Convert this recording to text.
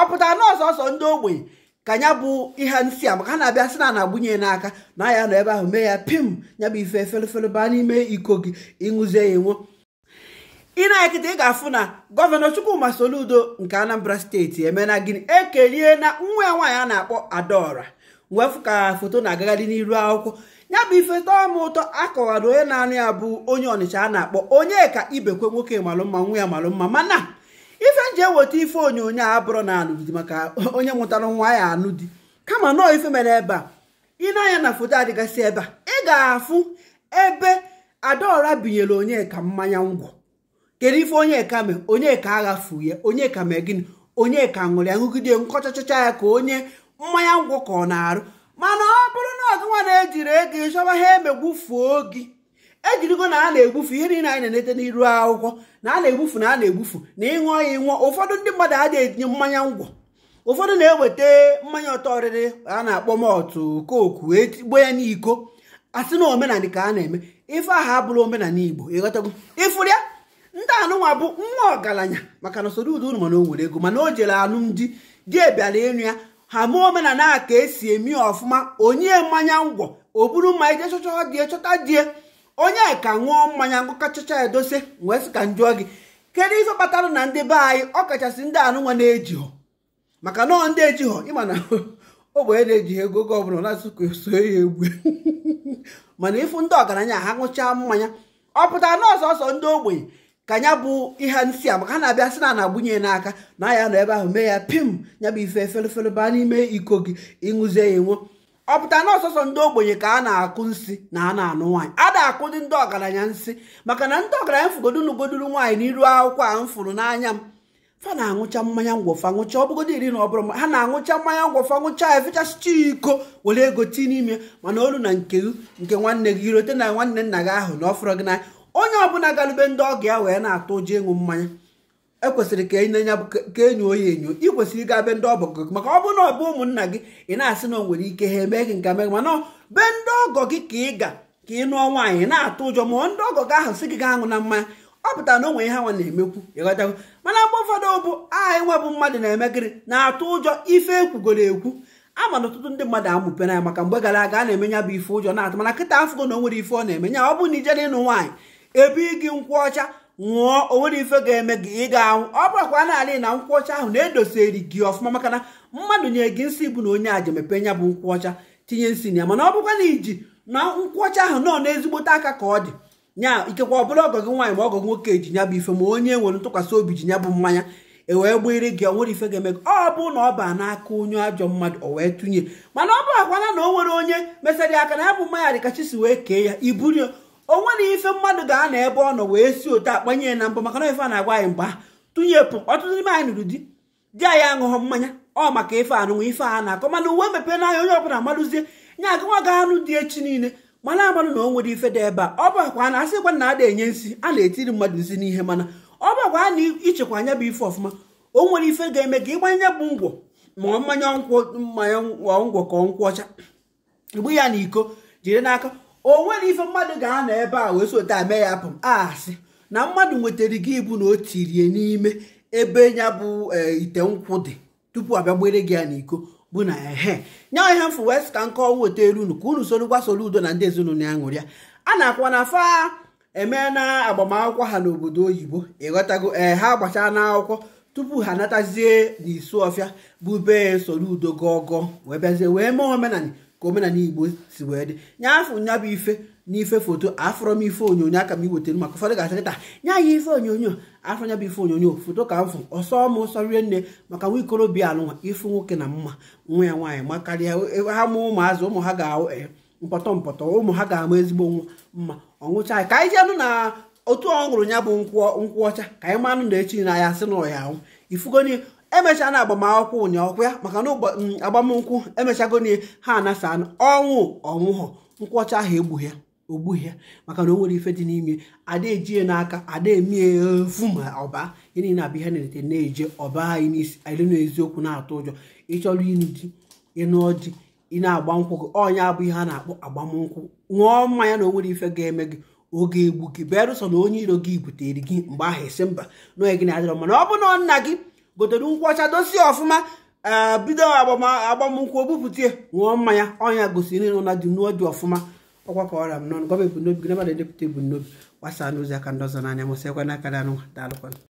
ọ pụtara na ọsọsọ ndị ogbenye ka ya bụ ihe nsị a maka ha na-abịa sị na na-agbunye n'aka na ya nọ ebe ahụ mee ya pim ya bụ ife efelefele baa n'ime iko gị ịṅụzie ya enwo ị na ị ga-afụ na gọvanọ Chukwuma Soludo nke Anambra steeti emena gịnị ekelie na nwa ya nwaanyị a na-akpọ adaọra wefu ka foto na-agagharị n'iru akwụkwọ ya bụ ife tọọ m ụtọ akọwara onye na-anụ ya bụ onye Ọnịcha a na-akpọ onye ka ibekwe nwoke malụmma nwa ya malụmma mana ife nji eweta ife onyonyo a bụrụ na alụdị maka onye mụtara nwa ya anụ di kama nọọ ife mere ebe a ị na-anya na foto adịgasị ebe a ị ga-afụ ebe adaọra binyere onyeka mmanya ngwọ kedu ife onyeka mee onyeka aghafu ya onyeka mee gịnị onyeka ṅụrụ ya ṅụgide nkọchachịcha ya ka onye mmanya ngwọ ka ọ na-arụ mana ọ bụrụ na ọgụnwa na-ejiri ego ịchọba ha emegbufuo gị ejirigo na a na-egbufu ihe niile anyị na-enete n'iru akwụkwọ na a na-egbufu na a na-egbufu na ịṅụọ ya ịṅụọ ụfọdụ ndị mmadụ a etinye mmanya ngwọ ụfọdụ na-eweta mmanya ọtọ ọrịrị a na-akpọ mọtụ koku etigbo ya n'iko asị na omenala ka a na-eme ife agha abụrụ omenala igbo ịghọtago ịfụrụ ya ndị anụnwa bụ nwa ọgaranya maka na usoro ụdị unu mana o nwere ego mana o jere alụmdi di e bịara ịnụ ya ha mee omenala ka esi emi ọfụma onye mmanya ngwọ o buru mma ije chọchọ chọta onye ka ṅụọ mmanya ngụkachacha edose wee sị ka njụọ gị kedu ife kpatara na ndị be anyị ọkachasị ndị anụnwa na-ejighọ maka nọọ ndị ejighọ ịma na ogbenye na-eji ego oge ọbụla na-asụkwa so ya egwu mana ịfụ ndị ọgaranya ha ṅụchaa mmanya ọ pụtara na ọsọsọ ndị ogbenye ka ya bụ ihe nsị a maka ha na-abịa sị na na-agbunye n'aka na ya nọ ebe ahụ mee ya pim ya bụ ife efere baa n'ime iko gị ịṅụzie ya enwe ọ pụta na ọsọsọ ndị ogbenye ka a na-akụ nsị na a na-anụ nwaanyị a na-akụ dị ndị ọgaranya nsị maka na ndị ọgaranya fụgodunugoduru nwaanyị n'iru akwụkwọ a m fụrụ n'anya m fa na-aṅụcha mmanya ngwọfa ọ ọbụgodo iri na ọ bụrụ ha na anwụcha mmanya ngwọfa ṅụcha efechasịcha iko were ego tii n'ime mana olu na nke nke nwanne gị irote na nwanne nna gị ahụ na ọ fụrụ gị n'anya onye ọbụla galube ndị ọgọ ya wee na-atụ ụjọ ịṅụ mmanya ekwesịrị ka enye ya ka enyo oyi enyo ị kwesịrị ịga be ndị ọgọ gị maka ọ bụrụ na ọ bụ ụmụnna gị ị na-asị na o nwere ike ha eme gị nke mee mana be ndị ọgọ gị ka ị ga ka ị nụọ nwaanyị na-atụ ụjọ ma ndị ọgọ gị ahụ sị gị ga aṅụ na mmanya ọ pụtara na o nwere ihe nwa na-emekwu ịghọtago mana mgbe ụfọdụ bụ aha enwebụ mmadụ na-eme gịrị na-atụ ụjọ ife ekwugoro ekwu ama na ọtụtụ ndị mmadụ amụpena ya maka mgbe gara aga a na-eme ya bụ ife ụjọ na-atụ mana kịta afụgo na o nwere ife ọ na emenya ọ bụ na ijere ịnụ nwaanyị ebe gị nkwụ ọcha nwụọ onwere ife ga-eme gị ị ga-anwụ ọ bụrakwa naanị na nkwụ ọcha ahụ na-edoseri gị ọfụma maka na mmadụ nye gị nsị bụ na onye aja mepe nya bụ nkwụ ọcha tinye nsị na ya mana ọ bụkwa na iji na nkwụ ọcha ahụ nọ n'ezigbote aka ka ọ dị nya ikekwa ọ bụla ọgọ gị nwaanyị ma ọgọ nwoke ji nya bụ ife ma onye nwere ntụkwasị obi ji nya bụ mmanya e wee gbere gị onwere ife ga-eme gị ọ bụ na ọ ba n'aka onye ajọ mmadụ o wee tụnye mana ọ bụ akwana na o nwere onye mesara aka na ya bụ mmanya dịka wee kee ya iburu o nwere ife mmadụ ga-anọ ebe ọ nọ wee si otu akpanye na mbụ maka na ife a na-agwa anyị mgba tụnyepụ ọtụtụ n'ime anyị nụrụ di di anyị aṅụghọ mmanya ọ maka ife anụnwụ ife a na-akọ mana uwe na n'anya onye ọbụla madụzie nye agawa ga anụ dị echi niile mana amanụ na o nwere ife dị ebe a ọ bụkwa na asịkwa na ada enye nsị a na-etiri mmadụ nsi n'ihe mana ọ bụ a na-ichekwa anya bụ ife ọfụma o nwere ife ga-eme ka ịgbanye bụ ngwọ ma mmanya mmanya ngwọ ka ọ ọcha igbu ya na iko jiri n'aka o nwere ife mmadụ ga-anọ ebe a wee sota mee ya pụm asị ah, na mmadụ nwetara gị ibu na o tirie n'ime ebe ya bụ eh, ite nkwụ dị tupu abịa gbere gị ya n'iko bụ na ehe nya ihe mfu west ka nke ọnwa oteelu unu ka unu soro gbasoro udo na ndị ezinụlọ ya ṅụrịa a na-akwa na fa eme na agbamakwụkwọ ha n'obodo oyibo ịghọtago ee eh, ha gbachaa n'akwụkwọ tupu ha natazie n'isu ọfịa bụ be soro udo gọgọ wee bịazie wee mee omenala ka omenala igbo si wee dị nye afọ nya bụ ife n'ife foto afọrọ m ife onyonyo aka m iwetara maka ụfọdụ ga-asịkịta nya ya ife onyonyo afọ nya bụ ife onyonyo foto ka m fụ ọsọ m ọsọ rie nne maka nwa ikorobịa alụnwa ife nwoke na mma nwa ya nwaanyị ma karịa ha mụ ụmụazụ ụmụ ha ga-ahụ eh, mpọtọ mpọtọ ụmụ ha ga-ama ezigbo nwa mma ọnwụcha anyị ka anyị jenụ na otu ọ ya bụ nkwụ ọcha ka anyị manụ na echi na ya sị na ọ ya ahụ ifugoni emechaa na agbamakwụkwọ ụnyaahụ ya maka na mm, agbamnkwụ n ha anasa ọnwụ ọnwụhọ nkwọcha ahụ egbughị ya ogbughị ya maka na o nwere ife dị n'ime ada ejie n'aka ada emie efu ma ọba ya niile abụ ihe na-erite na-eje ọba anyị n'isi anyị n'eziokwu na-atụ ụjọ ịchọrọ ịnụ di ịnụọ di ị na-agba nkwụ gị ọnya bụ ihe a na-akpọ agbamnkwụ ṅụọ mmanya na o nwere ife ga-eme gị oge egbu gị bịarụsọ na onye iro gị butere gị mgbe ahụ esi mba na gị na-adịrọ ọ bụ na nna gị gotere ụkwụ ọcha dosie ọfụma eh, bido agbamnkwụ bupụta ṅụọ mmanya ọnya gosiri nọ na dị ọfụma ọkwa ka ọra m nọ gọọmenti n'obi gị nabana edepụta n'obi gbasaa n'ozi aka ndị ọzọ n'anya mụsịakwa n'aka na anụ daalụkwanụ